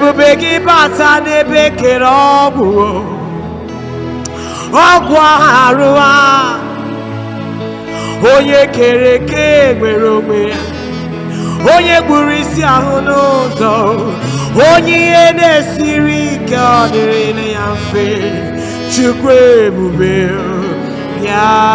ebube gị bata n'ebe kere ọgwụ ọgwụ arụ a onye kere eke nwere onwe ya onye gburu isi ahụ n'ụzọ onye ihe na-esiri ike ọ dịrị ya mfe chukwu ebube ya